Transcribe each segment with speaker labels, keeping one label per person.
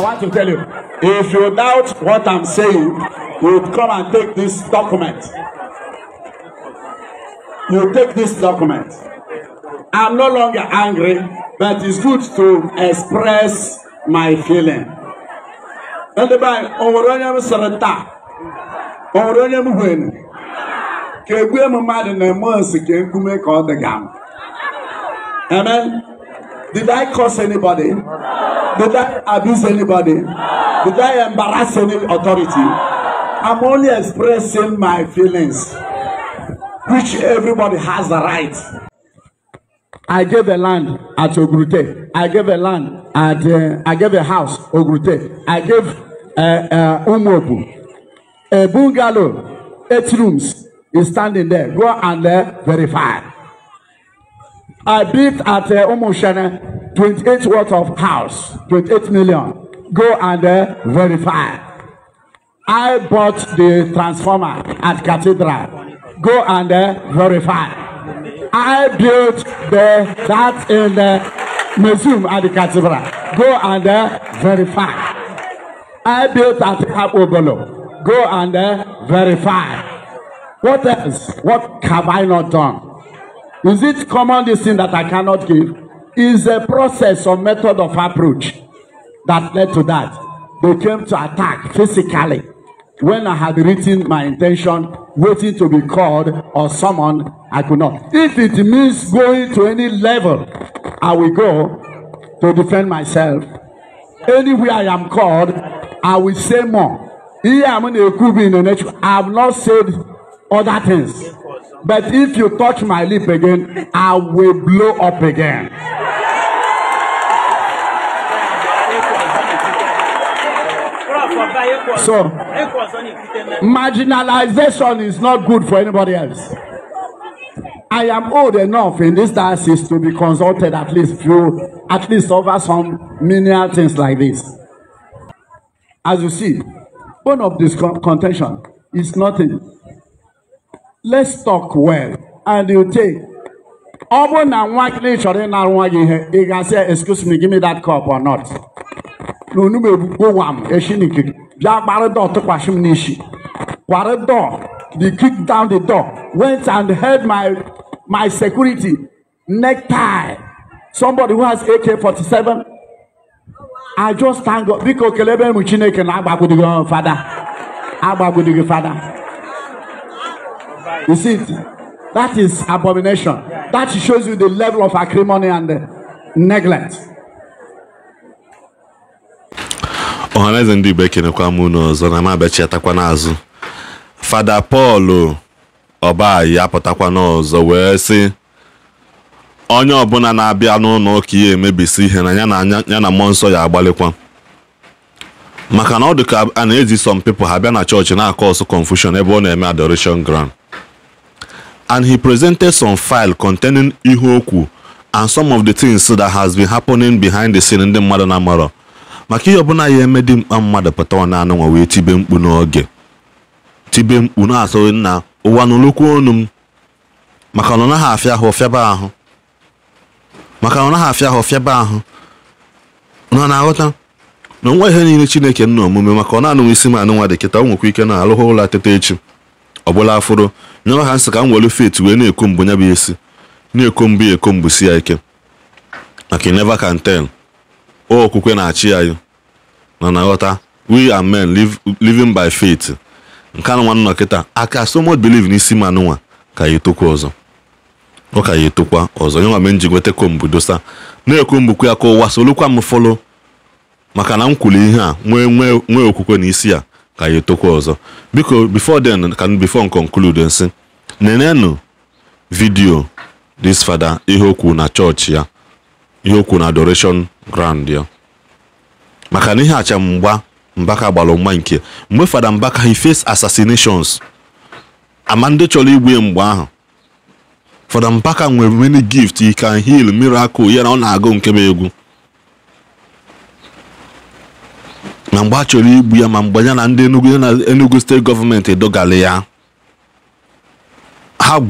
Speaker 1: I want to tell you, if you doubt what I'm saying, you come and take this document. You take this document. I'm no longer angry, but it's good to express my feeling. Ndị be anyị, o nwere onye m sịrị taa? O nwere onye gam. Amen. Did I curse anybody? Did I abuse anybody? Did I embarrass any authority? I'm only expressing my feelings, which everybody has the right. I gave a land at Ogrute. I gave a land at, uh, I gave a house, Ogrute. I gave uh, uh, Umobu. A bungalow, eight rooms, is standing there. Go and uh, verify. I built at uh, Umushene 28 worth of house, 28 million. Go and uh, verify. I bought the transformer at Cathedral. Go and uh, verify. I built the that in the uh, museum at the cathedral. Go and uh, verify. I built at Abobolo. Go and uh, verify. What else? What have I not done? Is it common this thing that I cannot give? Is a process or method of approach that led to that. They came to attack physically when I had written my intention, waiting to be called or summoned, I could not. If it means going to any level, I will go to defend myself. Anywhere I am called, I will say more. Here I'm in a in the nature. I have not said other things. But if you touch my lip again, I will blow up again.
Speaker 2: So, marginalization
Speaker 1: is not good for anybody else. I am old enough in this diocese to be consulted at least few, at least over some menial things like this. As you see, one of this contention is nothing let's talk well and you take ọ bụrụ na nwa gị na-echọrọ ịnara nwa gị ihe ị ga-asị excuse me give me that cup or not na onugbu egbugbo wam echi n'ikiri bịa gbara dọọ tụkwasị m n'isi kwara dọọ the kick down the door went and held my my security necktie somebody who has AK-47 I just thank God biko kelebe m Chineke na agbagbudigo fada agbagbudigo fada You see it? That is abomination. That shows you the level of acrimony and neglect.
Speaker 3: ọhaneze ndị igbo ekenekwa m unu ọzọ na mabechiatakwa n'azụ fada pọl ọbayi apụtakwa n'ọzọ wee sị onye ọbụla na-abịa n'ụlọ ụka ya emebisi ihe na ya na mmụọ nsọ ya agbalịkwa maka na ọ dị ka a na-ezi some people ha bịa na chọọchị na-akọ ọsụ confusion ebe ọ na-eme adoration ground and he presented some file containing ihe okwu and some of the things that has been happening behind the scene ndị mmadụ na-amarọ maka ihe ọbụla ya eme dị mkpa mmadụ pụta ọ na-anụnwa wee tibe mkpu n'oge tibe mkpu na-asụ nna ụwa n'olokwu ọnụ m maka na ọ naghị afịa ahụ fịaba ahụ maka na ọ naghị afịa ahụ fịaba ahụ nọ na-aghọta na nwa ihe niile chineke nna omume maka ọ na isi m anụnwa dị kịta o nwekwa ike na alụghị ụlọ teta echi ọ bụla afụrụ nyọrọ ha nsị ka m were fet wee na-ekwo mbụ nya bụ esi na-ekwo mbụ ya ekwo si ya ike maka never kan tell o okwukwe na-achị anyị na na ghọta we are men living by faith nke anụnwa nọ kịta aka so much believe n'isi m anụnwa ka ya etokwa ọzọ ọ ka ya etokwa ọzọ nyewa m ji nweta kombu dosa na-ekwo ya ka ụwa solukwa m fọlọ maka na m kwuru ihe a nwee nwee okwukwe na isi a ka ya etokwa ọzọ biko bifo then ka bifo conclude nsị nenenụ vidio this father ihe okwu na chọọchị ya ihe okwu na adoration grand ya maka na ihe acha mgba mbaka gbara mgba nke mgbe fada mbaka he face assassinations ama ndị chọrọ igbu ya mgbe ahụ fada mbaka nwere many gift he can heal miracle ya na ọ na-agụ nke bụ egwu na mgbe a chọrọ igbu ya ma mgbe ya na ndị enugu steeti gọọmenti dọgara ya ha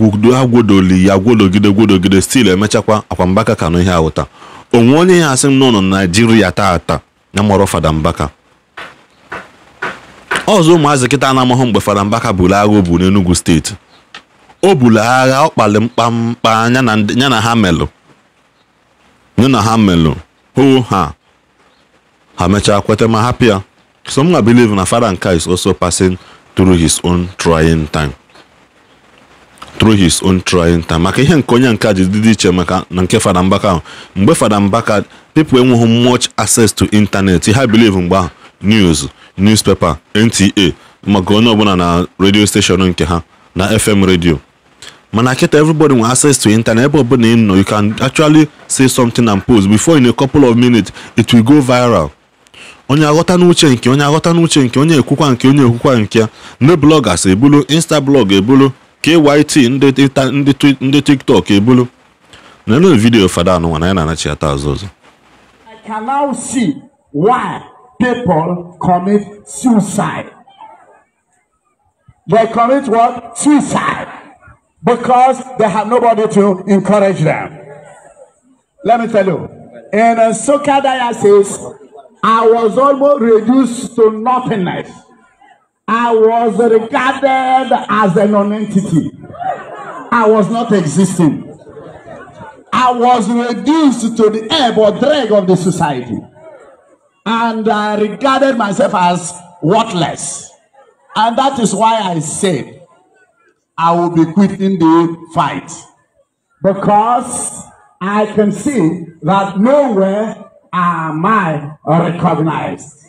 Speaker 3: gwodoli ya gwodogide gwodogide stil emechakwa mbaka ka n'ihe ihe awụta onwe onye ya asị m n'ụlọ naijiria taata ya mọrọ fada mbaka ọzọ ụmụazị kịta na-amahụ mgbe fada mbaka buru agha o bu n'enugu steeti o buru agha ọ kpali mkpamkpa ya na ha melụ ya na ha melụ hoo ha ha mechaa kweta ma happy ya some na believe na father is also passing through his own trying time through his own trying time maka ihe nke onye nka ji dị iche maka na nke fada mbaka ahụ mgbe fada mbaka pipo enweghị much access to internet ha believe mgbe ahụ news newspaper nta maka onye ọbụla na radio station nke ha na fm radio mana kịta everybody nwere access to internet ebe ọbụla ị nọ you can actually say something and post before in a couple of minutes it will go viral onye aghọta n'uche nke onye aghọta n'uche nke onye ekwukwa nke onye ekwukwa nke ya ndị blọgas ebulu insta blọg ebulu kyt ndị tiktok ebulu nenu vidiyo fada anụnwa na ya na-anachi ata azụ ọzọ
Speaker 1: I can now see why people commit suicide. They commit what? Suicide. Because they have nobody to encourage them. Let me tell you. In Soka diocese, I was almost reduced to nothingness. I was regarded as a non-entity. I was not existing. I was reduced to the ebb or drag of the society. And I regarded myself as worthless. And that is why I said, I will be quitting the fight. Because I can see that nowhere am I recognized?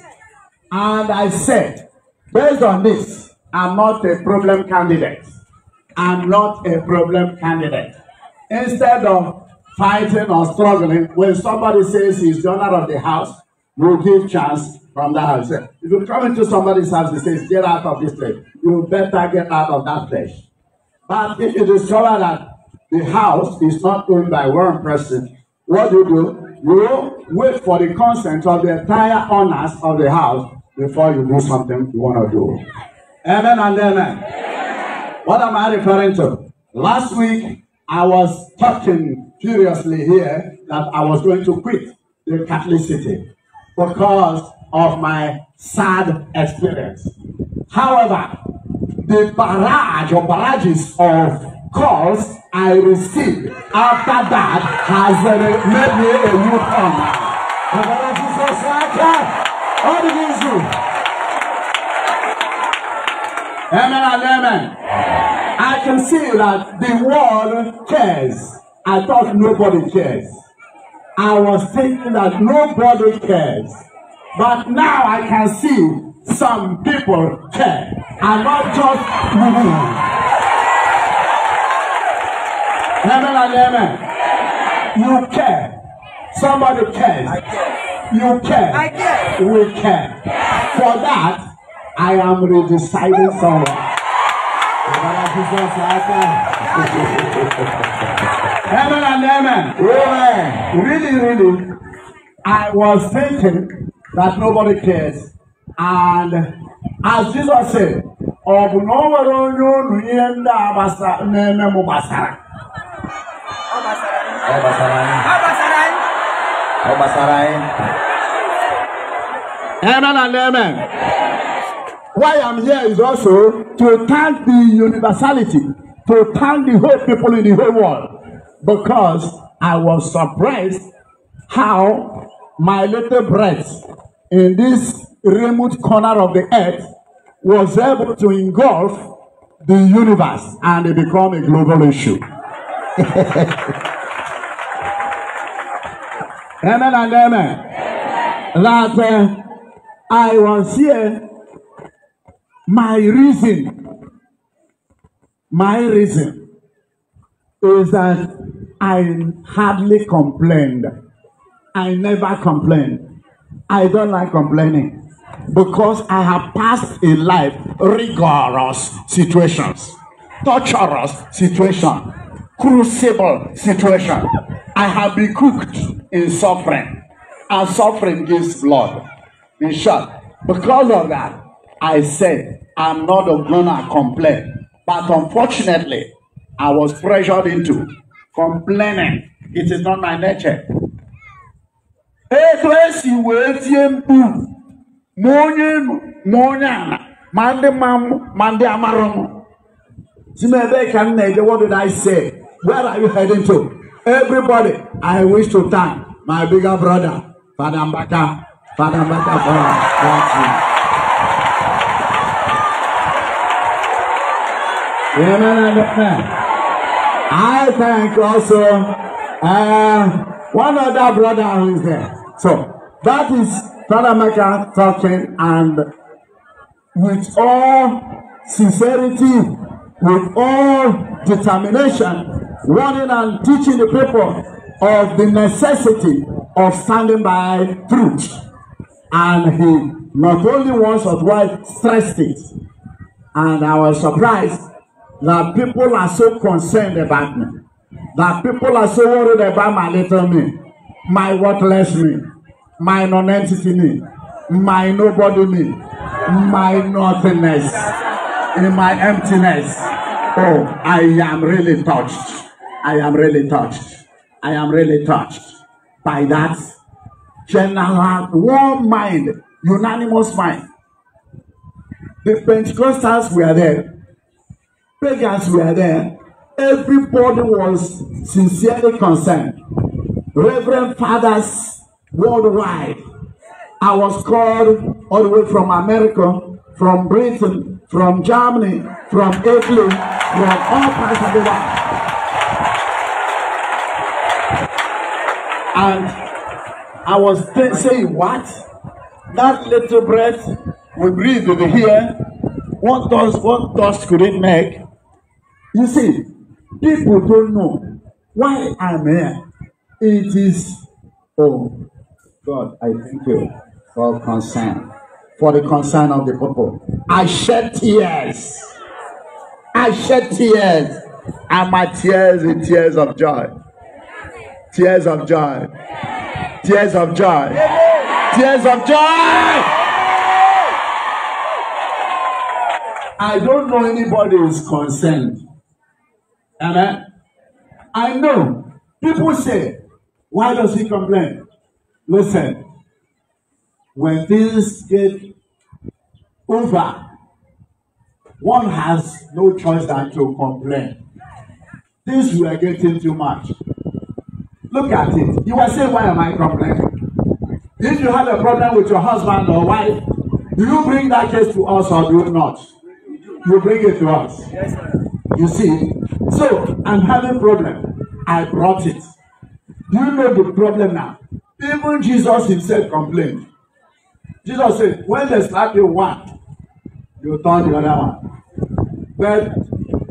Speaker 1: And I said, based on this, I'm not a problem candidate. I'm not a problem candidate. Instead of fighting or struggling, when somebody says he's the owner of the house, we'll give chance from that house. If you come into somebody's house and says, get out of this place, you better get out of that place. But if you discover that the house is not owned by one person, what do you do? You wait for the consent of the entire owners of the house before you do something you want to do. Amen and amen. What am I referring to? Last week, I was talking furiously here that I was going to quit the Catholic city because of my sad experience. However, the barrage or barrages of calls I received after that has uh, made me a new form. Bàbá Jésù Sáká, ó ní kí n sùn. Amen and amen. I can see that the world cares. I thought nobody cares. I was thinking that nobody cares. But now I can see some people care. And not just women. Amen and amen. You care. Somebody cares. You care. We care. For that, I am redeciding someone. Eh? Amen and amen. Really, really, I was thinking that nobody cares. And as Jesus said, ọ bụ na o nwere onye unu ihe ndị a na-eme m gbasara Oh Basarai. Oh Basarai. Oh Basarai. Amen and amen. Why I'm here is also to thank the universality, to thank the whole people in the whole world, because I was surprised how my little breath in this remote corner of the earth was able to engulf the universe and it become a global issue. Amen and amen. That uh, I was here, my reason, my reason is that I hardly complained. I never complained. I don't like complaining because I have passed in life rigorous situations, torturous situations crucible situation. I have been cooked in suffering, and suffering gives blood. In short, because of that, I said, I'm not going to complain. But unfortunately, I was pressured into complaining. It is not my nature. Etu esi wee tie mkpu ma onye enu ma ma ndị ma Si m ebee ka what did I say? Where are you heading to? Everybody, I wish to thank my bigger brother, Father Mbaka. Father Mbaka, thank you. I thank also uh, one other brother who is there. So that is Father Mbaka, talking and with all sincerity, with all determination, warning and teaching the people of the necessity of standing by truth. And he not only once or twice stressed it. And I was surprised that people are so concerned about me, that people are so worried about my little me, my worthless me, my non-entity me, my nobody me, my nothingness, in my emptiness. Oh, I am really touched. I am really touched. I am really touched by that general warm mind, unanimous mind. The Pentecostals were there, pagans were there, everybody was sincerely concerned. Reverend fathers worldwide. I was called all the way from America, from Britain, from Germany, from Italy, from all parts of the world. And I was saying, what? That little breath we breathe over here, what dust, what dust could it make? You see, people don't know why I'm here. It is, oh, God, I thank you for concern, for the concern of the people. I shed tears. I shed tears, and my tears in tears of joy. Tears of joy. Tears of joy. Tears of joy. I don't know anybody who's concerned. Amen. I know people say, why does he complain? Listen, when things get over, one has no choice than to complain. Things were getting too much. Look at it. You were saying, why am I complaining? If you had a problem with your husband or wife, do you bring that case to us or do you not? You bring it to us. Yes, sir. You see? So, I'm having problem. I brought it. Do you know the problem now? Even Jesus himself complained. Jesus said, when they slap you one, you turn the other one. But,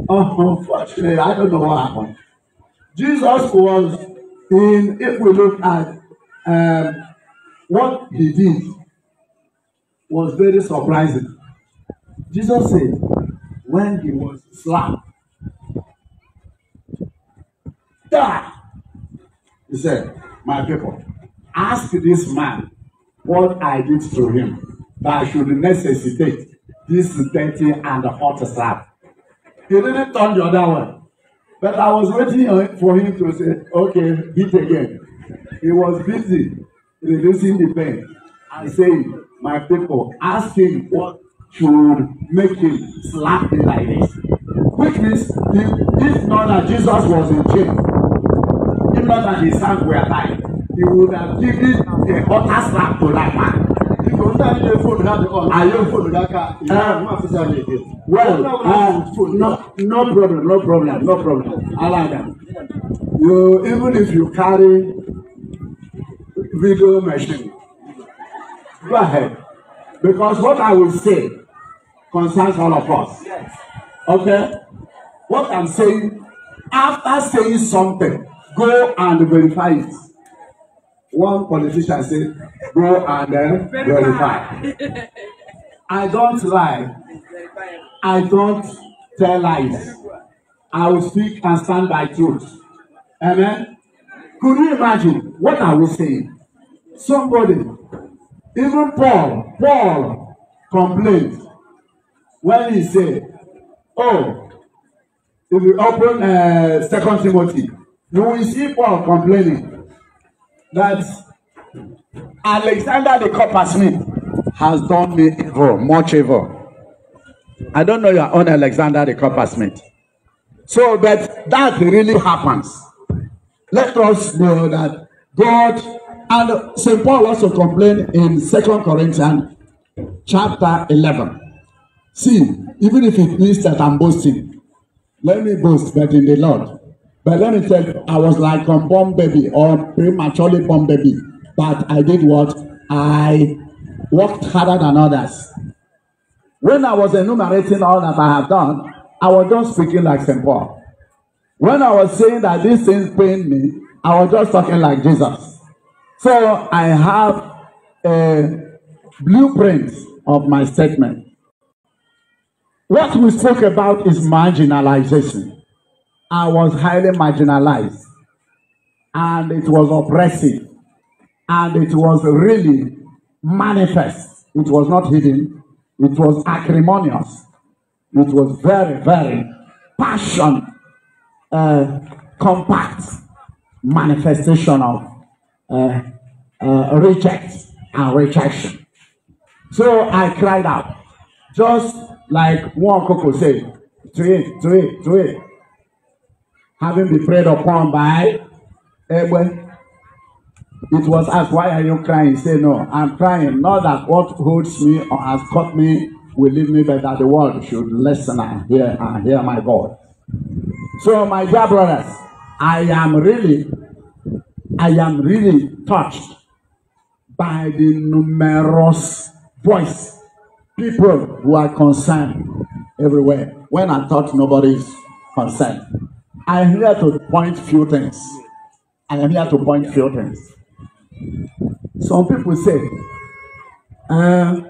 Speaker 1: oh, unfortunately, I don't know what happened. Jesus was in if we look at um, what he did was very surprising. Jesus said, when he was slapped, die. He said, My people, ask this man what I did to him that I should necessitate this dirty and hot slap. He didn't turn the other way. But I was waiting for him to say, okay, beat again. He was busy reducing the pain and saying, my people, ask him what should make him slap me like this. Which means, if, not that Jesus was in jail, if not that his hands were tied, he would have given the utter slap to that man òun náà nílé ah. well um, no no problem no problem no problem alada you even if you carry video machine go ahead because what I will say concerns all of us okay what I'm saying after saying something go and verify it one politician say go and then uh, verify i don't lie i don't tell lies i will speak and stand by truth amen could you imagine what i was saying somebody even paul paul complained when he said, oh if you open uh, second timothy you will see paul complaining that Alexander the coppersmith has done me evil, much evil. I don't know your own Alexander the coppersmith. So, but that really happens. Let us know that God and St. Paul also complained in Second Corinthians chapter 11. See, even if it means that I'm boasting, let me boast, but in the Lord. But let me tell you, I was like a born baby or prematurely born baby. But I did what? I worked harder than others. When I was enumerating all that I have done, I was just speaking like St. Paul. When I was saying that these things pain me, I was just talking like Jesus. So I have a blueprint of my statement. What we spoke about is marginalization. I was highly marginalized and it was oppressive and it was really manifest. It was not hidden. It was acrimonious. It was very, very passion, uh, compact manifestation of uh, uh, reject and rejection. So I cried out, just like one coco said, to it, to it, to it having been prayed upon by Egbe. It was asked, Why are you crying? Say, No, I'm crying. Not that what holds me or has caught me will leave me, but that the world should listen and hear and hear my God. So, my dear brothers, I am really, I am really touched by the numerous voice people who are concerned everywhere. When I thought nobody is concerned. I am here to point few things. I am here to point few things. Some people say, uh,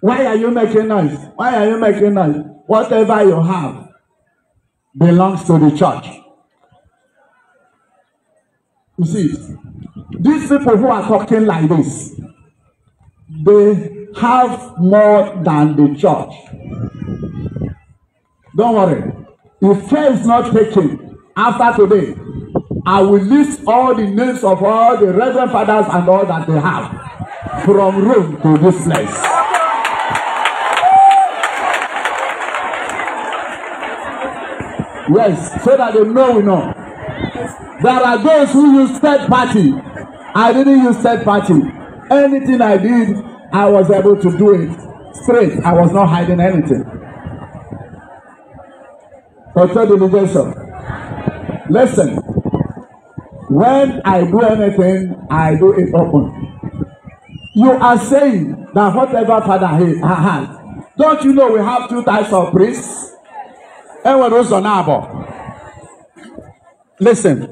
Speaker 1: why are you making noise? Why are you making noise? Whatever you have belongs to the church. You see, these people who are talking like this, they have more than the church. Don't worry. If care is not taken, after today, I will list all the names of all the reverend fathers and all that they have from Rome to this place. Yes, so that they know we know. There are those who use third party. I didn't use third party. Anything I did, I was able to do it straight. I was not hiding anything. Consider the Listen, when I do anything, I do it open. You are saying that whatever Father he, has, don't you know we have two types of priests? Everyone knows on our Listen,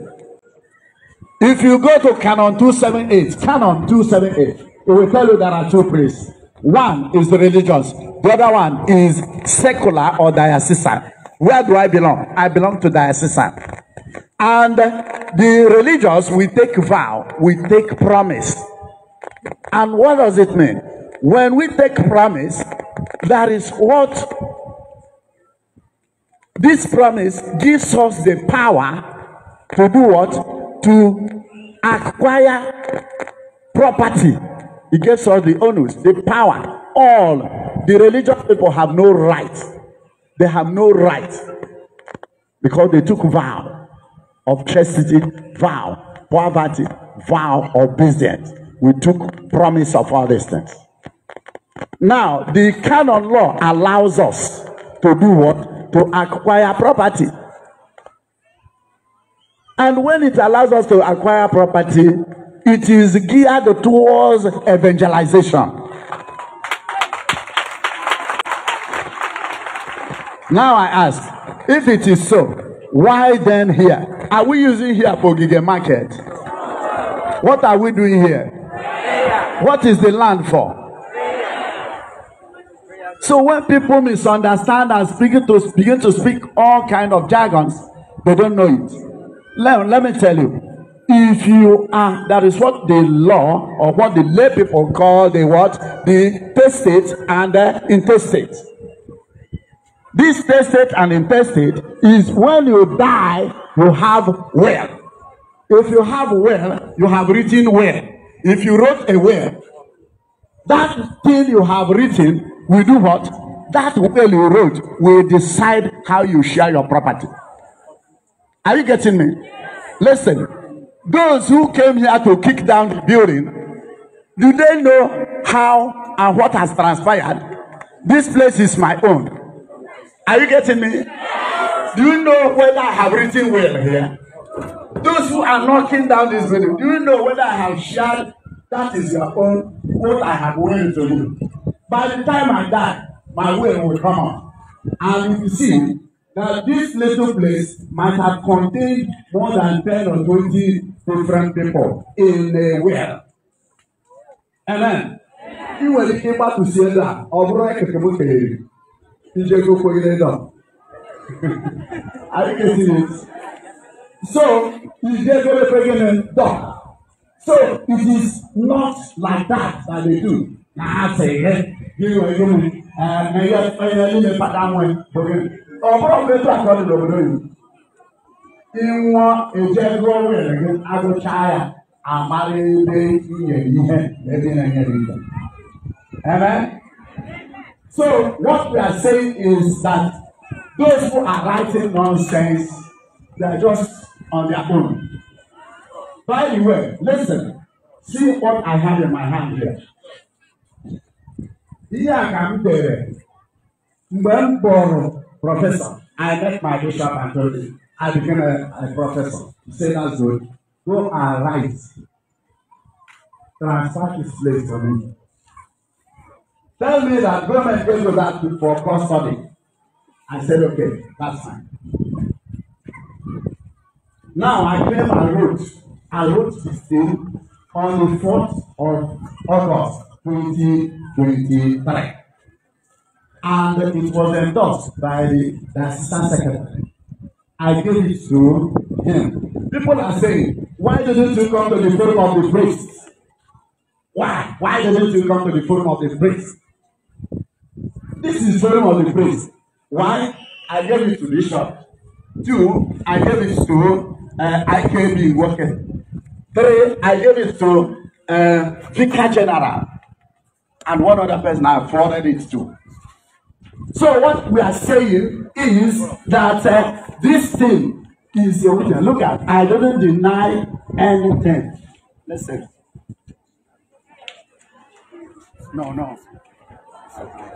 Speaker 1: if you go to Canon 278, Canon 278, it will tell you there are two priests. One is the religious, the other one is secular or diocesan. Where do I belong? I belong to diocesan. And the religious we take vow, we take promise. And what does it mean? When we take promise, that is what this promise gives us the power to do what? To acquire property. It gives us the onus, the power. All the religious people have no rights. They have no right because they took vow of chastity, vow, poverty, vow of business. We took promise of all these things. Now, the canon law allows us to do what? To acquire property. And when it allows us to acquire property, it is geared towards evangelization. Now I ask, if it is so, why then here? Are we using here for Gige Market? What are we doing here? What is the land for? So when people misunderstand and begin to begin to speak all kind of jargons, they don't know it. Let, let me tell you, if you are that is what the law or what the lay people call the what the testate and the intestate. This testate and intestate is when you die, you have will. If you have will, you have written will. If you wrote a will, that thing you have written we do what? That will you wrote will decide how you share your property. Are you getting me? Listen, those who came here to kick down the building, do they know how and what has transpired? This place is my own. Are you getting me? Do you know whether I have written well here? Those who are knocking down this building, do you know whether I have shared that is your own what I have willing to do? By the time I die, my will will come out. And if you see that this little place might have contained more than 10 or 20 different people in a well. Amen. Amen. Ị nwere ike ịgbapụsi ebe a, Ije go for you down. Are you getting it? So, Ije go for you down. So, it is not like that that they do. Na ase ihe, gịnị wee gịnị? Na ihe onye niile fada nwe bụghị. Ọ bụrụ mgbe etu akọ dị n'obodo gị. Ịnwụọ eje gụọ nwere gị agụchaa ya amara ebe i nyere ihe ebe ị na-enye gị ihe. Amen. So what we are saying is that those who are writing nonsense, they are just on their own. By the way, listen, see what I have in my hand here. Ihe a ka m dere mgbe m bụrụ prọfesọ, I met my bishop and told him I became a, a professor. Say said that's good. Go and write. Transfer this place for me. Tell me that government goes to that for custody. I said, okay, that's fine. Now I came and wrote. I wrote this thing on the fourth of August twenty twenty-three, And it was endorsed by the, the assistant secretary. I gave it to him. People are saying, why didn't you come to the forum of the priests? Why? Why didn't you come to the forum of the priests? This is very much the praise. One, I gave it to Bishop. Two, I gave it to uh, IKB Worker. Three, I gave it to uh, Vicar General. And one other person I forwarded it to. So what we are saying is that uh, this thing is a witness. Look at, I don't deny anything. Listen. No, no. Okay.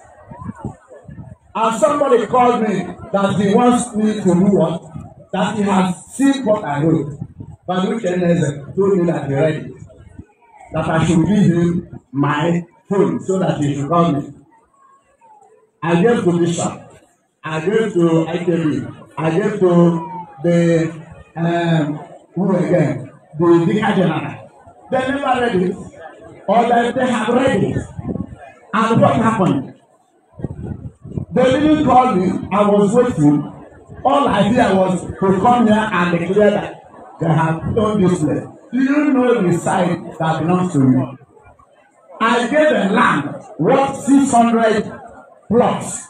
Speaker 1: And somebody called me that he wants me to do what? That he has seen what I wrote. But which NSF told me that he read it. That I should give him my phone so that he should call me. I gave to Bishop. I gave to ITB. I gave to the, um, who again? The Vicar General. They never read it. Or that they have read it. And what happened? They didn't call me. I was waiting. All I did was to come here and declare that they have done this land. Do you know the site that belongs to me? I gave the land worth hundred plots.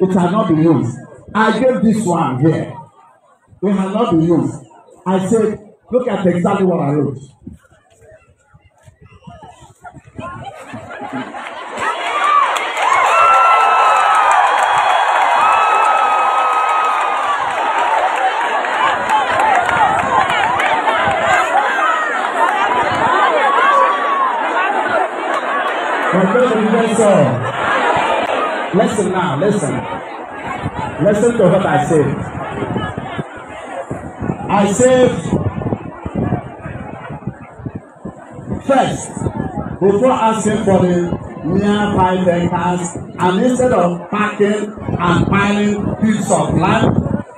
Speaker 1: It has not been used. I gave this one here. It has not been used. I said, look at exactly what I wrote. Listen. Listen now, listen. Listen to what I say. I said, first, before asking for the mere five acres, and instead of packing and piling pieces of land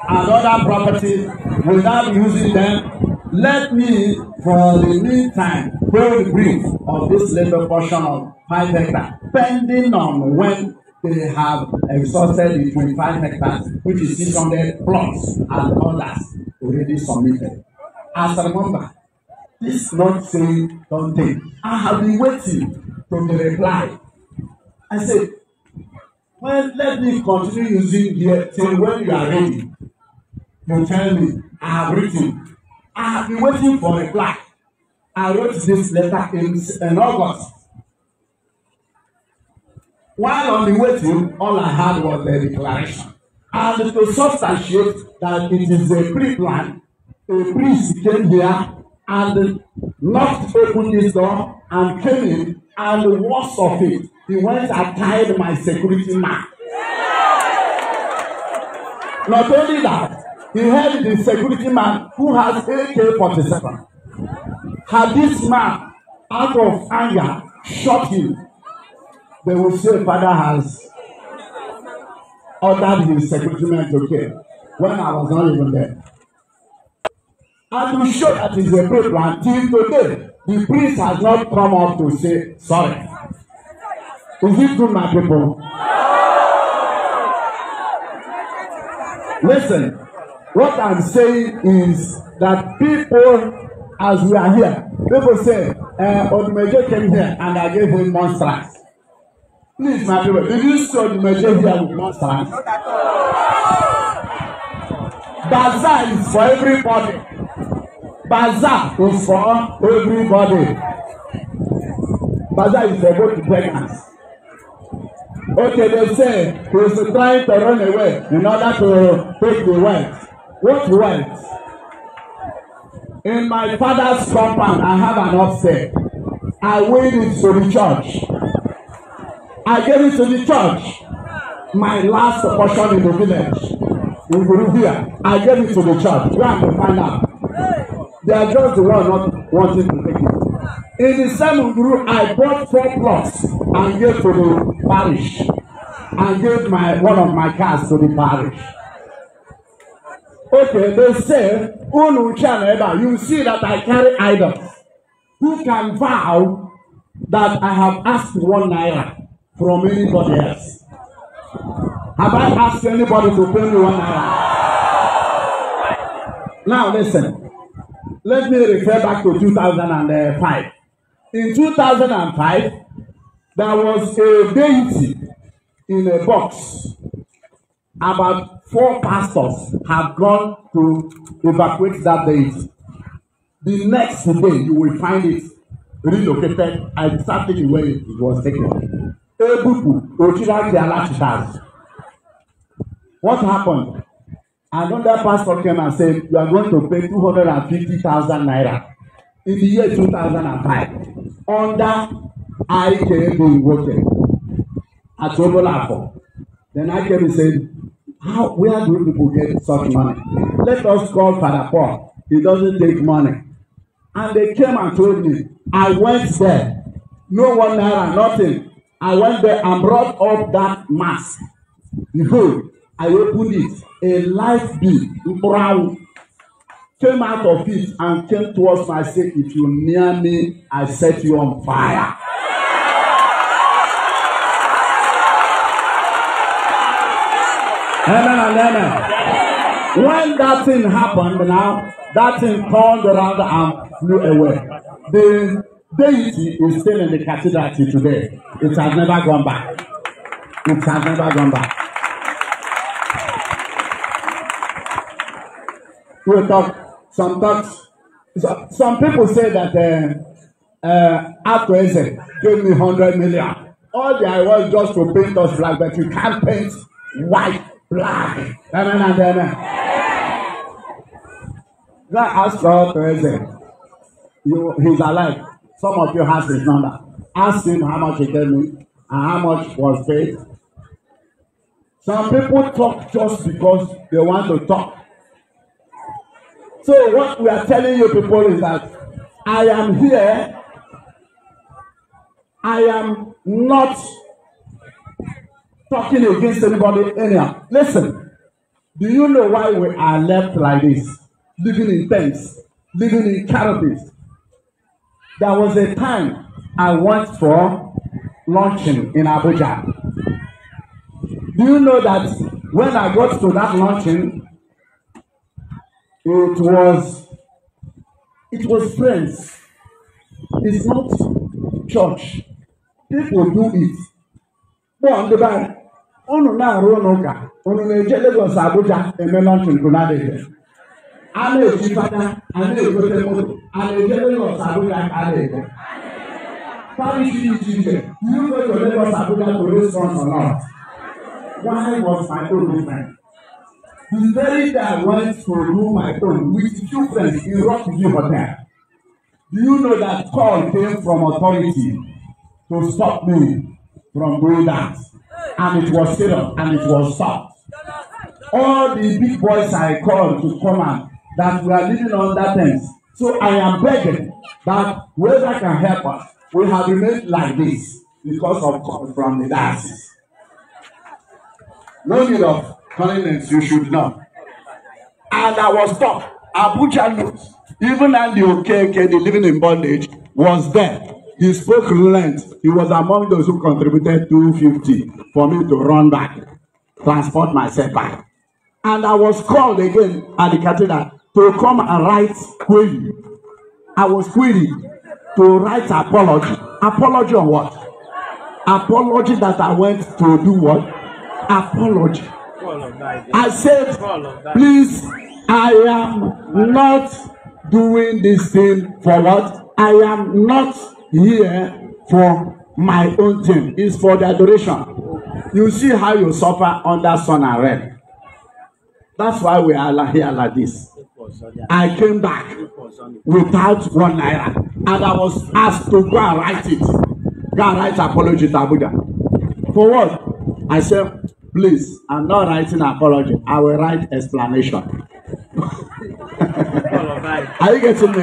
Speaker 1: and other property without using them, let me, for the meantime, build brief of this little portion of five hectares depending on when they have exhausted the twenty-five hectares which is six hundred plots and others already submitted. As a member, this not saying don take. I have been waiting for the reply. I said, well, let me continue using here till when you are ready. You tell me, I have written. I have been waiting for a reply. I wrote this letter in, in August. While on the way to all I had was the declaration. And to substantiate that it is a pre-plan, a priest came here and knocked open this door and came in, and the worst of it, he went and tied my security man. Not only that, he held the security man who has AK-47. Had this man, out of anger, shot him they will say father has ordered his secretary to kill when I was not even there. And to show that it's a paper until today, the priest has not come up to say sorry. Is it true, my people? Listen, what I'm saying is that people, as we are here, people say, uh, eh, Odumeje came here and I gave him monstrance. Please, my people, if you saw the majority, here would not stand. Bazaar is for everybody. Bazaar is for everybody. Bazaar is for both beggars. Okay, they say he is trying to run away in order to take the wife. What wife? In my father's compound, I have an upset. I win it to the church. I gave it to the church. My last portion in the village. In Bolivia, I gave it to the church. Where am I find out? They are just the one not wanting to take it. In the same group, I bought four plots and gave to the parish. And gave my one of my cars to the parish. Okay, they say, Unu you see that I carry idols. Who can vow that I have asked one naira? from anybody else. Have I asked anybody to pay me one naira? Now listen, let me refer back to 2005. In 2005, there was a deity in a box. About four pastors have gone to evacuate that deity. The next day, you will find it relocated exactly where it was taken ebupu ochilaki alachitari what happened another pastor came and said you are going to pay two hundred and fifty thousand naira in the year two thousand and five under ikb woke at obolafo then ikb said how where do people get such money let us call father paul he doesn't take money and they came and told me i went there no one naira nothing And when they brought up that mass, behold, I opened it, a light beam, brown, came out of it and came towards me and said, If you near me, I set you on fire. Amen and amen. When that thing happened now, that thing turned around and flew away. The deity is still in the cathedral till today. It has never gone back. It has never gone back. We talk some talks. So, some people say that uh, uh, Akweze gave me hundred million. All the I want just to paint us black, but you can't paint white black. Amen and amen. God asked for Akweze. You, he's alive. Some of you have his number. Ask him how much he gave me and how much was paid. Some people talk just because they want to talk. So what we are telling you people is that I am here. I am not talking against anybody anyhow. Listen, do you know why we are left like this? Living in tents, living in caravans? There was a time I went for luncheon in Abuja. Do you know that when I got to that luncheon, it was it was friends. It's not church. People do it. Bọ́ọ̀ ndị bara, unu na-arụ n'ụka, unu na-eje Lagos Abuja eme luncheon bụ na ana eji fada ana egote moto ana eje lagos abuja ana ego parity iche iche you go to lagos abuja to raise funds or not why was my own movement the very day i went to remove my phone with two friends in rock view hotel do you know that call came from authority to stop me from doing that and it was serious and it was soft all the big boys i called to come and that we are living under terms. So I am begging that whoever can help us, we have remained like this because of from the diocese. No need of condolence, you should know. And I was tough. Abuja knows. Even Andy Okeke, the living in bondage, was there. He spoke relent. He was among those who contributed 250 for me to run back, transport myself back. And I was called again at the cathedral to come and write query. I was queried to write apology. Apology on what? Apology that I went to do what? Apology. I said, please, I am not doing this thing for what? I am not here for my own thing. It's for the adoration. You see how you suffer under sun and rain. That's why we are here like this. I came back without one naira and I was asked to go and write it. Go and write apology to Abuja. For what? I said, please, I'm not writing apology. I will write explanation. Are you getting me?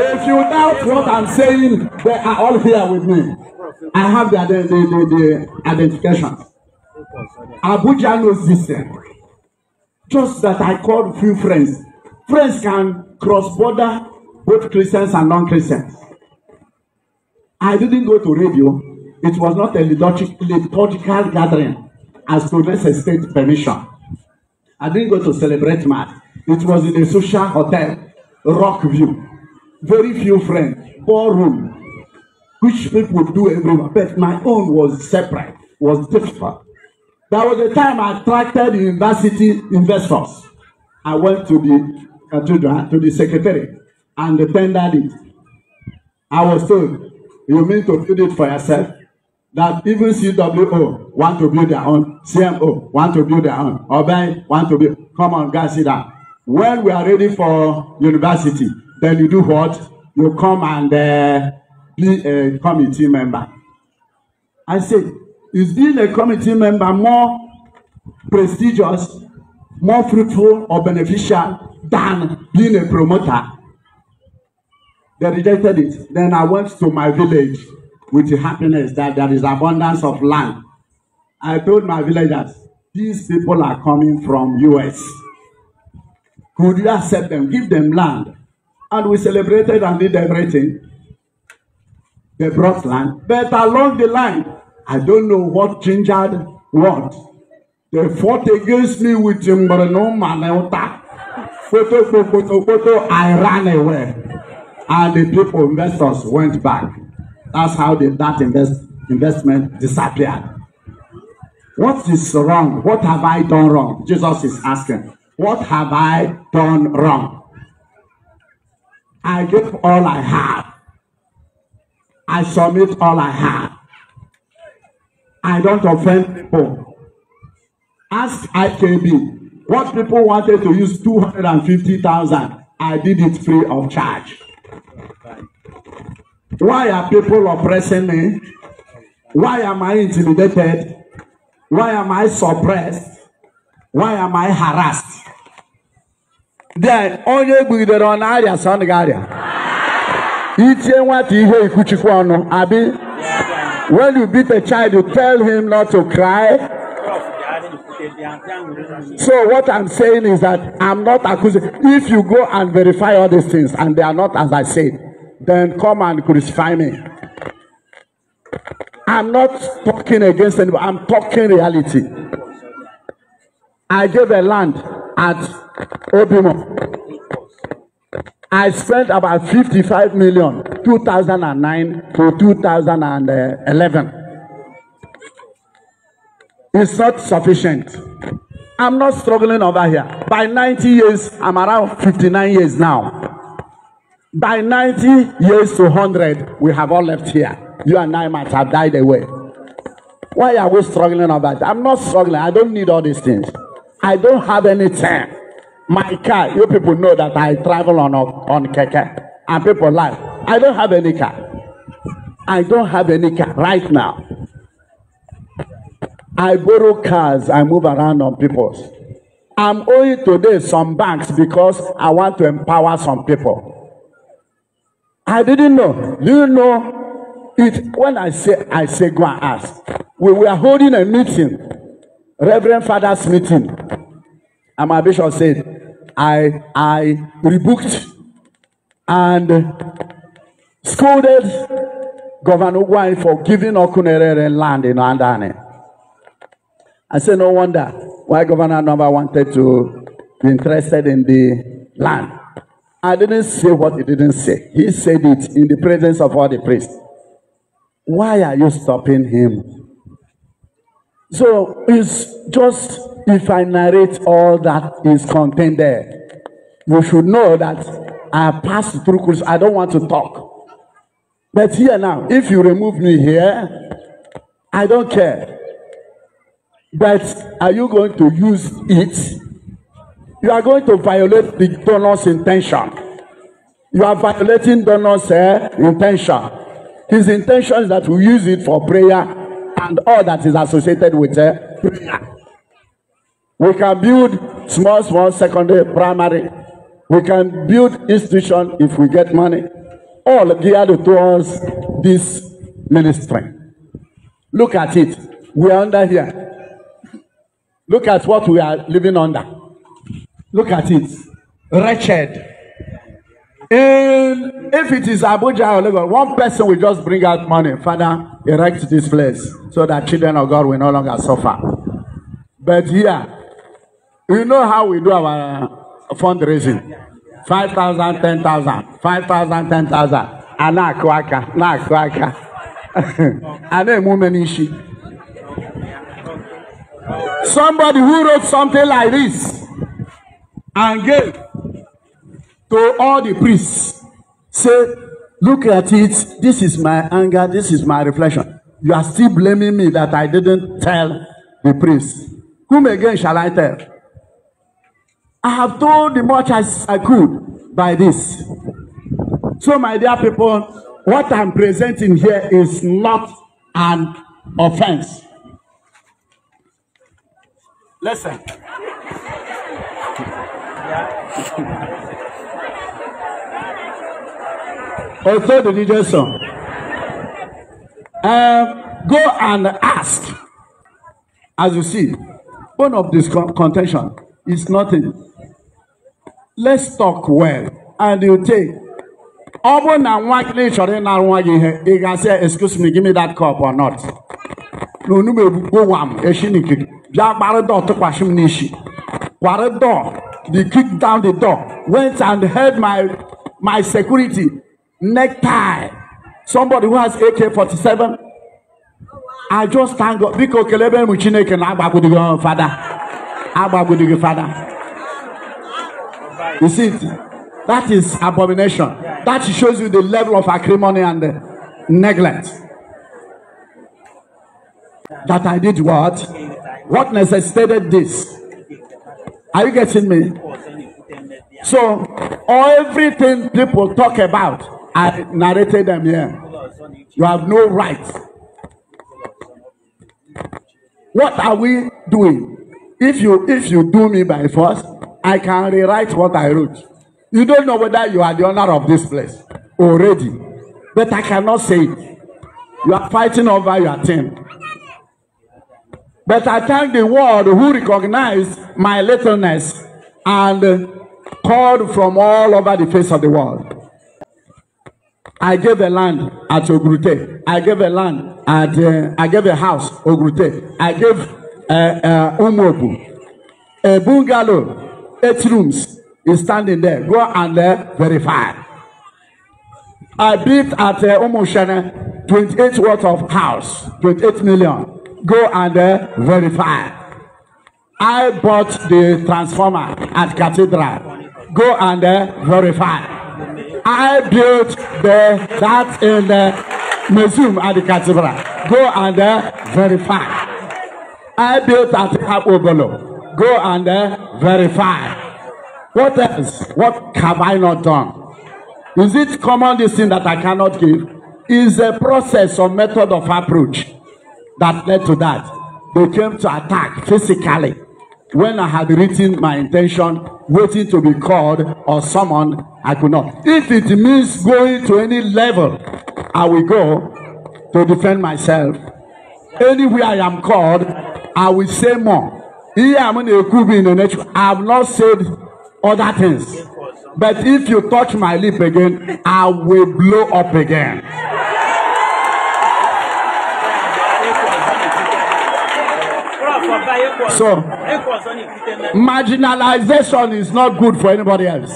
Speaker 1: If you doubt what I'm saying, they are all here with me. I have the, the, the, the, the identification. Abuja knows this. Thing. Just that I called few friends. Friends can cross border both Christians and non-Christians. I didn't go to radio. It was not a liturgical gathering as to state permission. I didn't go to celebrate mass. It was in a social hotel, rock view. Very few friends, ballroom, which people do everywhere. But my own was separate, was different. There was a time I attracted university investors. I went to the uh, to the, to the secretary and tendered it. I was told, you mean to build it for yourself? That even CWO want to build their own, CMO want to build their own, Obai want to build. Come on, guys, See that When we are ready for university, then you do what? You come and uh, be a committee member. I said, is being a committee member more prestigious, more fruitful or beneficial than being a promoter? They rejected it. Then I went to my village with the happiness that there is abundance of land. I told my villagers, these people are coming from US. Could you accept them? Give them land. And we celebrated and did everything. They brought land. But along the line, I don't know what gingered what. They fought against me with him, but no man photo, photo, photo, I ran away. And the people, investors went back. That's how the, that invest, investment disappeared. What is wrong? What have I done wrong? Jesus is asking. What have I done wrong? I give all I have. I submit all I have. I don't offend people. Ask IKB what people wanted to use 250,000. I did it free of charge. Why are people oppressing me? Why am I intimidated? Why am I suppressed? Why am I harassed? Then onye gbugidere ọ na-arịa sọ ọ na-arịa. Itie nwata ihe ikwuchikwa ọnụ abi. When you beat a child, you tell him not to cry. So what I'm saying is that I'm not accusing. If you go and verify all these things and they are not as I said, then come and crucify me. I'm not talking against anybody. I'm talking reality. I gave a land at Obimo. I spent about fifty-five million two thousand and nine to two thousand and eleven. It's not sufficient. I'm not struggling over here. By ninety years, I'm around fifty-nine years now. By ninety years to hundred, we have all left here. You and I might have died away. Why are we struggling over that? I'm not struggling. I don't need all these things. I don't have any time. My car, you people know that I travel on on keke, and people like, I don't have any car. I don't have any car right now. I borrow cars, I move around on people's. I'm owing today some banks because I want to empower some people. I didn't know. Do you know it? When I say, I say, go and ask. We were holding a meeting, Reverend Father's meeting. And my bishop said, I, I rebooked and scolded Governor Wine for giving Okunerere land in Andane. I said, no wonder why Governor Number wanted to be interested in the land. I didn't say what he didn't say. He said it in the presence of all the priests. Why are you stopping him? So it's just if I narrate all that is contained there, you should know that I passed through crucifixion. I don't want to talk. But here now, if you remove me here, I don't care. But are you going to use it? You are going to violate the donor's intention. You are violating donor's uh, intention. His intention is that we use it for prayer and all that is associated with uh, prayer. We can build small, small secondary, primary. We can build institution if we get money. All geared towards this ministry. Look at it. We are under here. Look at what we are living under. Look at it. Wretched. And if it is Abuja or Lagos, one person will just bring out money. Father, erect this place so that children of God will no longer suffer. But here, We know how we do our uh, fundraising. Five thousand, ten thousand, five thousand, ten thousand. Ana kwaka, na kwaka. Ana mumenishi. Somebody who wrote something like this and gave to all the priests say, look at it. This is my anger. This is my reflection. You are still blaming me that I didn't tell the priest. Whom again shall I tell? I have done the much as I could by this. So, my dear people, what I'm presenting here is not an offense. Listen. Also, the DJ song. Um, go and ask. As you see, one of this contention is nothing let's talk well and you take ọ bụrụ na nwa gị chọrọ ịnara nwa gị ihe ị ga-asị excuse me give me that cup or not na onugbu egbugbo nwa m echi n'ikiri bịa gbara dọọ tụkwasị m n'isi kwara dọọ they kicked down the door went and held my my security necktie somebody who has AK-47 I just thank God biko kelebe m Chineke na agbagbudigo fada agbagbudigo fada You see That is abomination. That shows you the level of acrimony and neglect. That I did what? What necessitated this? Are you getting me? So, everything people talk about, I narrated them here. You have no right. What are we doing? If you if you do me by force, I can rewrite what I wrote. You don't know whether you are the owner of this place already, but I cannot say it. You are fighting over your team. But I thank the world who recognized my littleness and called from all over the face of the world. I gave a land at Ogrute. I gave a land at, uh, I gave a house, Ogrute. I gave uh, uh, Umobu, a bungalow eight rooms is standing there. Go and uh, verify. I built at uh, twenty-eight worth of house, twenty-eight million. Go and uh, verify. I bought the transformer at Cathedral. Go and uh, verify. I built the that in the uh, museum at the Cathedral. Go and uh, verify. I built at Habobolo. Go and uh, verify. What else? What have I not done? Is it common this thing that I cannot give? Is a process or method of approach that led to that. They came to attack physically when I had written my intention, waiting to be called or summoned, I could not. If it means going to any level, I will go to defend myself. Anywhere I am called, I will say more. I'm in the nature. I've not said other things. But if you touch my lip again, I will blow up again. So, marginalization is not good for anybody else.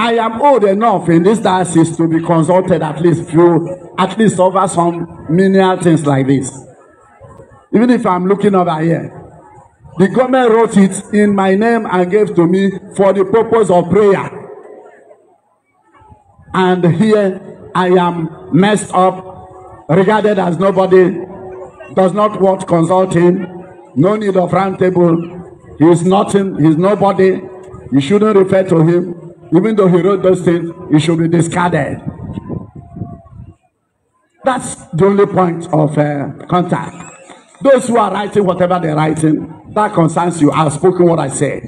Speaker 1: I am old enough in this diocese to be consulted at least few, at least over some menial things like this. Even if I'm looking over here, The government wrote it in my name and gave to me for the purpose of prayer. And here I am messed up, regarded as nobody, does not want consulting, no need of round table. He's nothing, He's nobody. You shouldn't refer to him. Even though he wrote those things, he should be discarded. That's the only point of uh, contact. Those who are writing whatever they're writing, that concerns you. I've spoken what I said.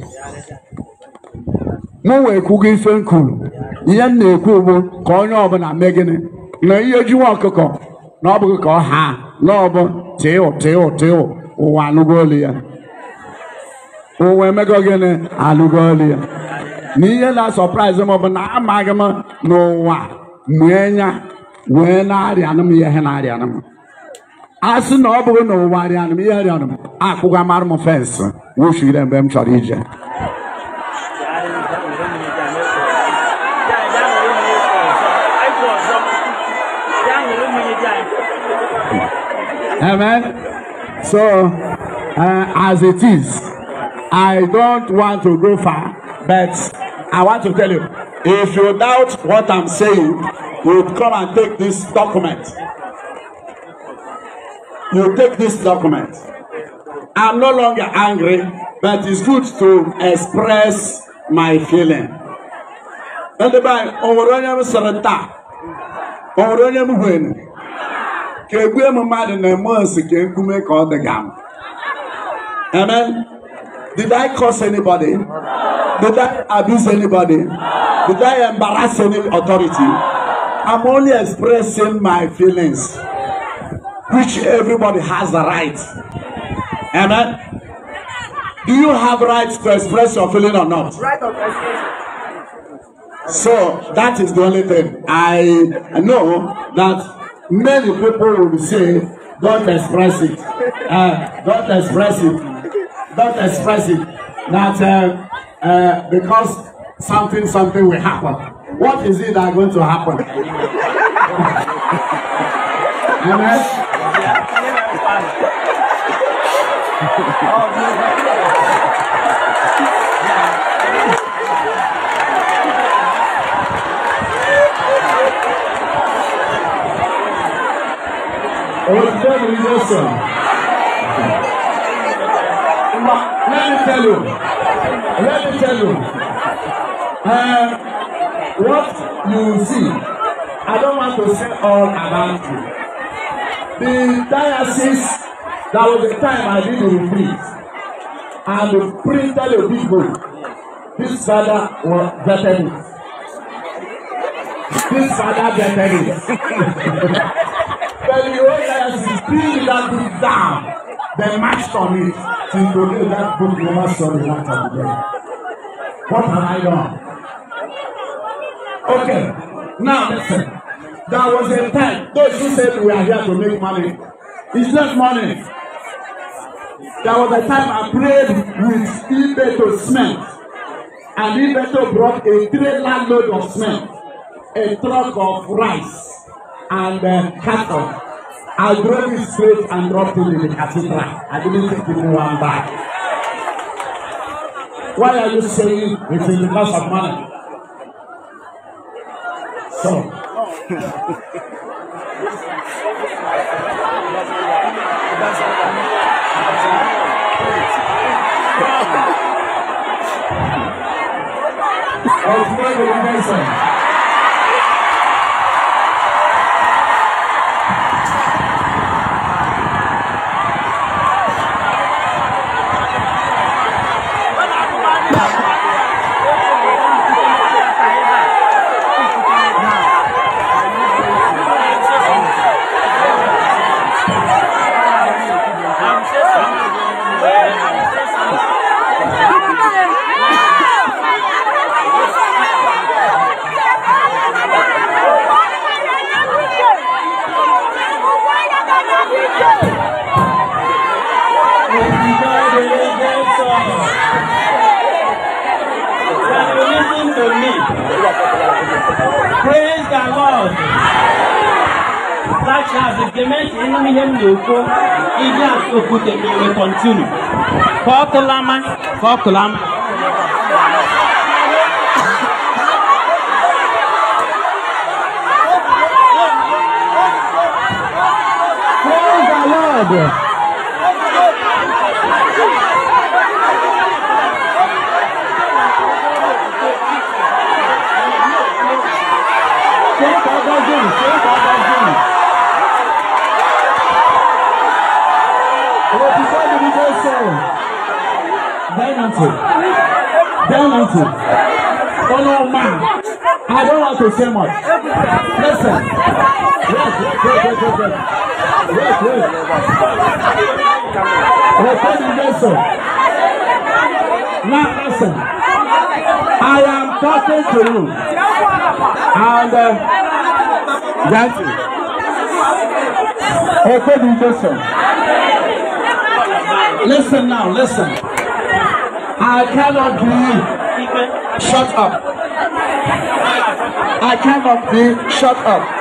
Speaker 1: Mụ wee kwugo ife m ihe m na-ekwu ugbu ka onye ọbụla mee gịnị na ihe jiwa ọkụkọ na ọ bụghị ka ọ ha na ọbụ tịụ tịụ tịụ ụwa anụgo ya ụwa emego gịnị anụgo ya na ihe na-asọpraịzị m bụ na amaghị m na ụwa nwee wee na m ihe na m asị na ọ bụrụ na ụwa arịanụ m ihe arịanụ m akpụga mara m fensị wufu ire mgbe m chọrọ ije amen so uh, as it is i don't want to go far but i want to tell you if you doubt what i'm saying you come and take this document you take this document. I'm no longer angry, but it's good to express my feeling. Ndeba ọwụrụ onye m sịrị taa, ọwụrụ onye m hụrụ, ka egwe m mmadụ na-eme osi ka nkume ka ọ dịga m. Amen. Did I curse anybody? Did I abuse anybody? Did I embarrass any authority? I'm only expressing my feelings which everybody has the right. Amen. Do you have rights to express your feeling or not? Right of So that is the only thing. I know that many people will say, don't express it. Uh, don't express it. Don't express it. That uh, uh, because something, something will happen. What is it that going to happen? Amen. Ladies
Speaker 2: and gentlemen, he's awesome.
Speaker 1: Let me tell you. Let me tell you. Uh, what you see, I don't want to say all about you the diocese that was the time I did the retreat and we printed a big book this father was vetted it this father vetted it but the whole diocese bring that book down they marched on it till do that book never saw the light of the day what have I done okay now listen. There was a time those who said we are here to make money. It's not money. There was a time I prayed with Ibeto Smith, And Ibeto brought a trailer load of Smith, a truck of rice, and uh, cattle. I drove it straight and dropped it in the cathedral. I didn't take even one bag. Why are you saying it is
Speaker 2: because of money? So. Oh, my Nelson. na-ekwu iji asụ okwute
Speaker 1: kọntinu ka ọ kụlama
Speaker 2: Oh, my To say much. Listen. Yes. Yes. Yes. Yes. Yes. Yes. Yes. Record the lesson. Now listen. I am talking to you. And uh, um, thank
Speaker 1: you. Record the lesson. Listen now, listen. I cannot believe. Shut up. I cannot be shut up.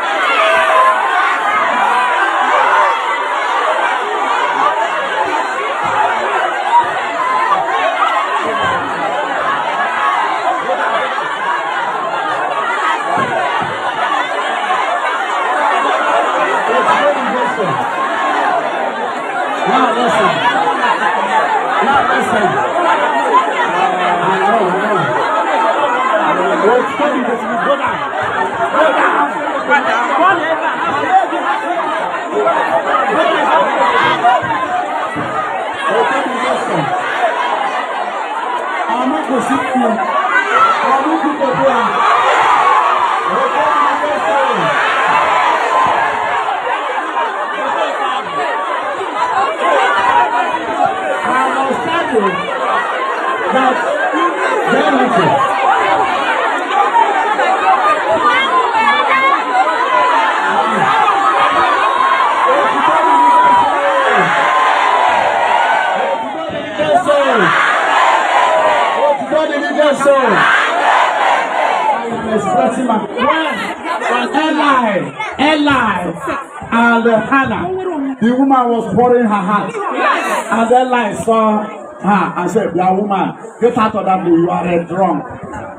Speaker 1: was pouring her heart. And then like saw her and said, "You are woman. Get out of that. You are a drunk."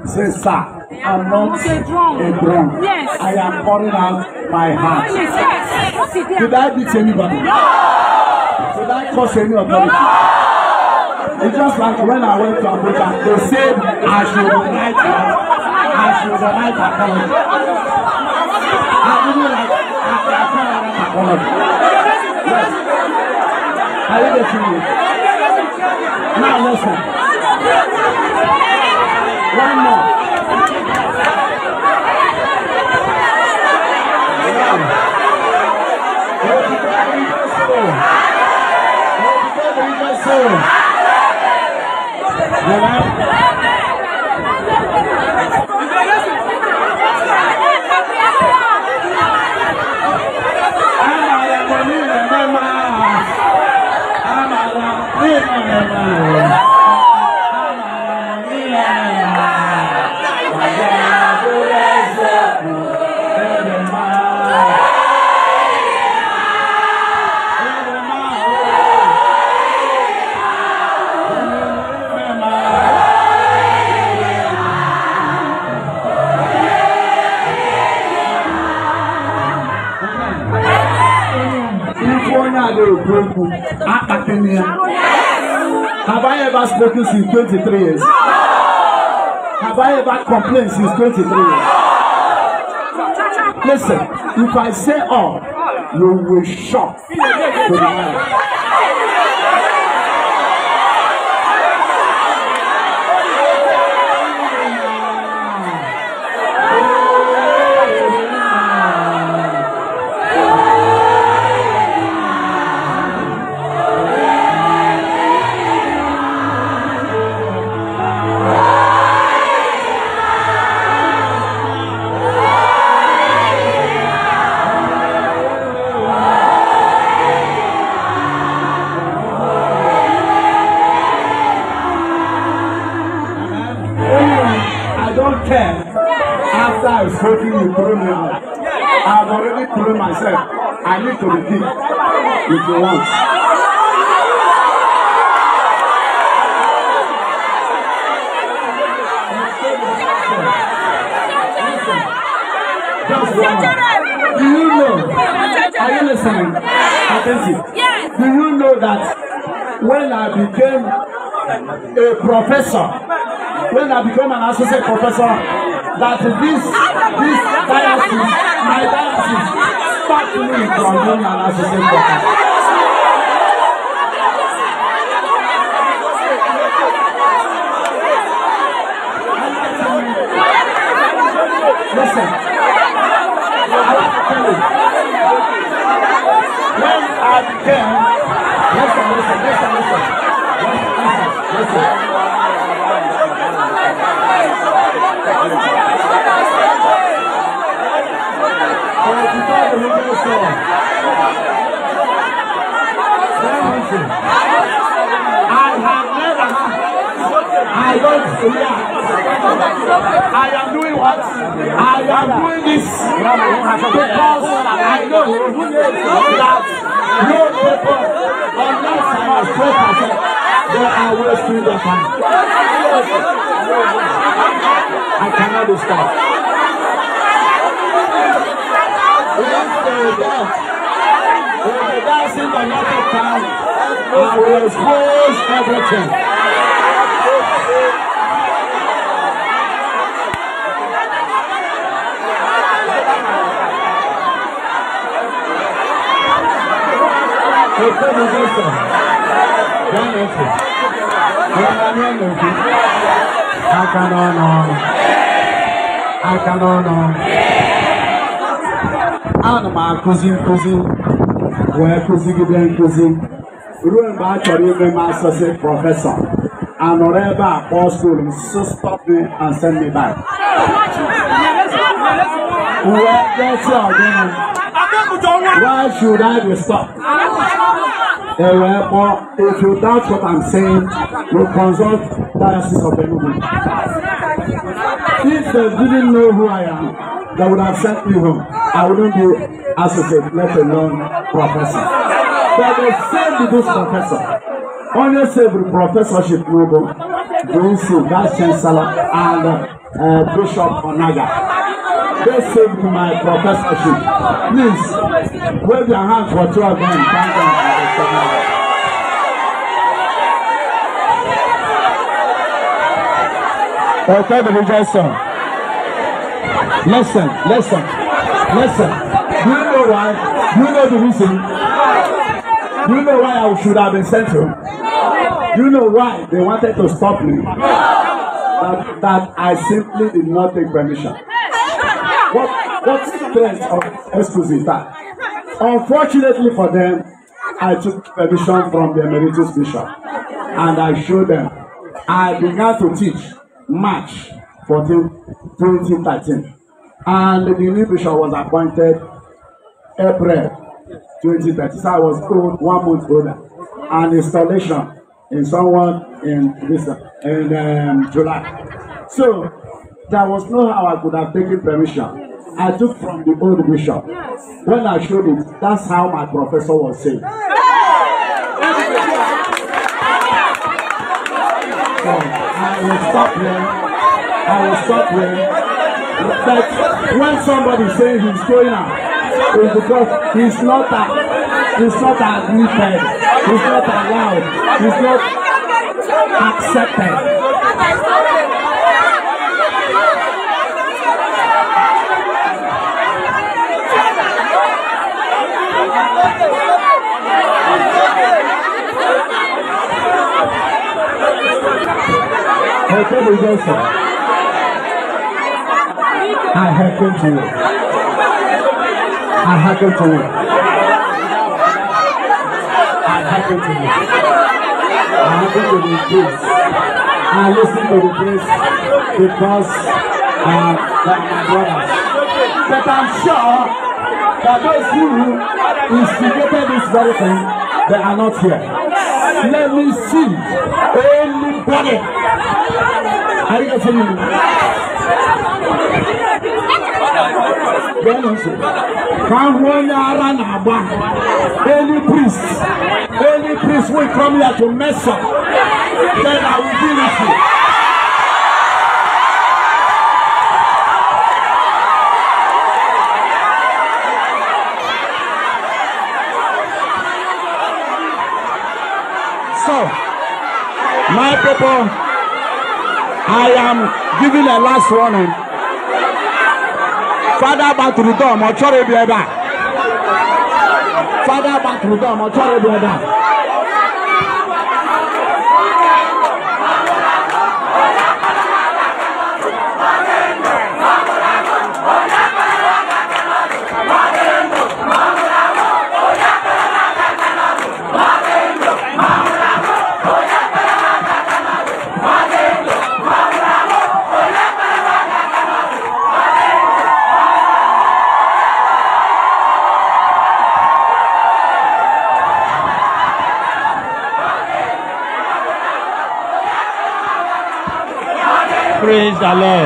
Speaker 1: Say, "Sir, I'm not a drunk. A drunk. Yes. I am pouring out my heart." Yes. Did I beat anybody? No. Did
Speaker 2: I
Speaker 1: cause any authority? No. It's just like when I went to Abuja, they said I should write
Speaker 2: I should write apology. I didn't like I, can't write apology. Yes. Are you getting me? Now listen. One more.
Speaker 1: 23 years? Have I ever complained since 23 years? Listen, if I say all, you will shock listening? Attentive. Do you know that when I became a professor, when I became an associate professor, that this this diocese,
Speaker 2: my diocese, stopped me from being an associate professor. Listen. Ten. Listen, listen, listen, listen. Listen, listen, listen.
Speaker 1: Forty-five original song. Seventy. I have never.
Speaker 2: I don't fear.
Speaker 1: I am doing what? I am doing this because I know that. Your paper. Unless not must pay
Speaker 2: percent, there are ways to the family. I cannot be stopped. Once they dance, when they dance in the market town, I will expose everything. Ekwebu Johnson, John Efe, Emmanuel Obi, aka n'ọnụ ọnụ,
Speaker 1: aka n'ọnụ ọnụ. Ana m akụzi nkụzi wee kụzigide nkụzi ruo mgbe a chọrọ ime m asọsị prọfesọ anọrọ ebe a so stop me and send me back. Wee gọsi Why should I be stopped? ẹ̀rọ ẹ̀kọ́ if you doubt what i'm saying you consult diocese of enugu if they didn't know who i am they would have sent me home i wouldn't be associate let alone professor but they saved this professor only saved professorship nogo doinsi vice chancellor and uh, bishop onaga they saved my professorship please wave your hands for two of them thank them.
Speaker 2: I'll play the religious
Speaker 1: song. Listen, listen, listen. Do you know why? Do you know the reason? Do you know why I should have been sent to? Do you know why they wanted to stop me? That, that I simply did not take permission. What, what strength of excuse is that? Unfortunately for them, I took permission from the emeritus bishop and I showed them. I began to teach March 14, 2013. And the new bishop was appointed April 2013. So I was old, one month older. an installation in someone in this in um, July. So there was no how I could have taken permission. I took from the old bishop. Yes. When I showed him, that's how my professor was saying. So I
Speaker 2: will stop here. I will stop
Speaker 1: here. But when somebody says he's going out, it's because he's not a, he's not admitted, he's not allowed, he's
Speaker 2: not accepted. Akebo Johnson. I hearken to it. I hearken to it. I hearken to it. I hearken to the grace. I listen to the grace because uh, like my brothers. But I'm sure that those who instigated this very thing, they are not here. Let me see anybody. Are you for me?
Speaker 1: Kahwana Aranaba. Any priest, any priest will come here to mess up. Then I will deal with you. So, my people. I am giving a last warning. Father back to the Baturudom, be ẹ̀dá. Father back to the Baturudom, be ẹ̀dá. galera.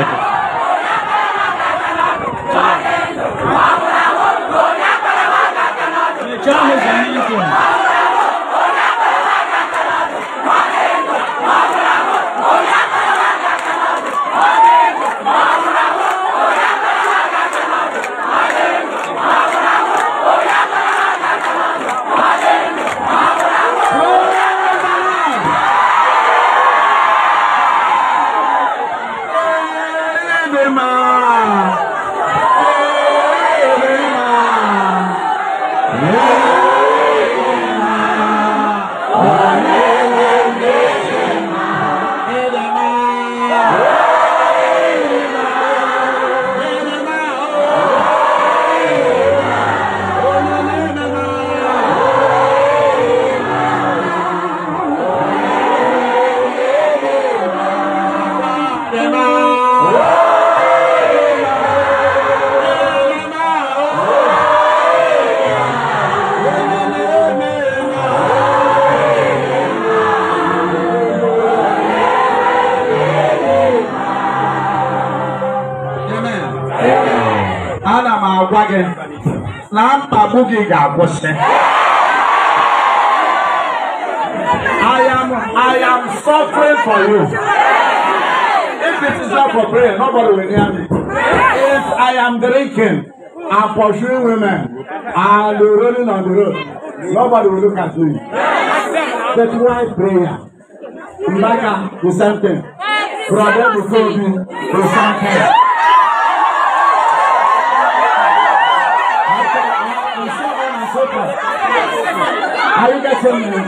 Speaker 1: de yɛ abɔhyɛ.
Speaker 2: I am
Speaker 1: I am suffering for you. If it is not for prayer, nobody will hear me. If I am drinking and pursuing women, I'll be rolling on the road. Nobody will look at me. That's why prayer. Imagine the same thing. Brother, we me. you the same thing. family.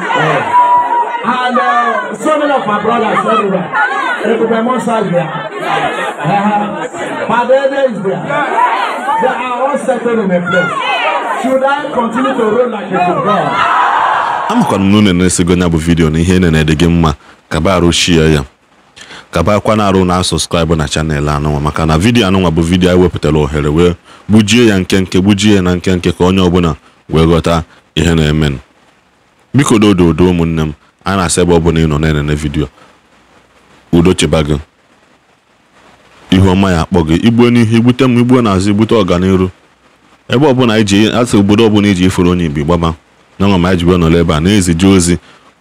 Speaker 1: And uh, so many of my brothers everywhere. Everywhere, Monsa is there. Uh, uh-huh. Padede is there. They are all settled in a place. Should I continue to roll like a football?
Speaker 3: na unu na-esego ya bụ vidiyo na ihe na-ede gị mma kaba arụchie ya kaba akwa na arụ na sọskraịbụ na chanel anụnwa maka na vidiyo anụnwa bụ vidiyo anyị wepụtara ohere wee gbujie ya nke nke gbujie ya na nke ka onye ọbụla wee ghọta ihe na-emenụ biko dodo odo ụmụnne m a na-asị ebe ọ bụla ị nọ na-enene vidiyo udo cheba gị ihuọma ya akpọ gị igbuo n'ihu igbute m igbuo n'azụ igbute ọganihu ebe ọbụla anyị ji asị obodo ọbụla iji ifuru onye ibi gbaba na ọma ma anyị jibe nọrọ ebe a na-ezije ozi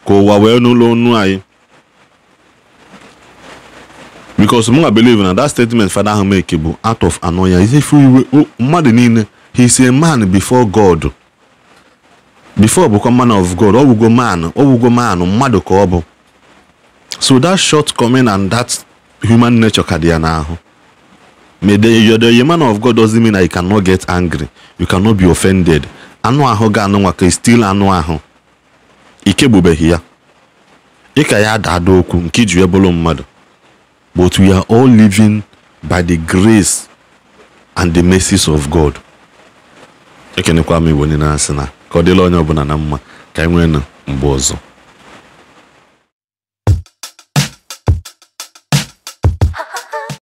Speaker 3: ka ụwa wee n'ụlọ onu anyị because mụ na believe na that statement fada ahụ make bụ out of annoyance ife iwe mmadụ niile he is a man before God before bụkwa man of god ọwụgo man ọwụgo man mmadụ ka ọ bụ so that coming and that human nature ka dị ya n'ahụ the man of god doesn't mean that you cannot get angry you cannot be offended anụ ahụ ga anụ nwaka still anụ ahụ ikegbubeghị ya ịka ya ada okwu nke iji wee bụrụ mmadụ but we are all living by the grace and the mercies of god ekenekwa m na ka ọ dịla onye ọbụla na mma ka anyị e nwee na mgbe ọzọ